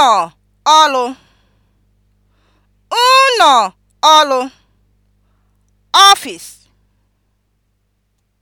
ụnọ ọlụ ụnọ ọlụ (ọfịs)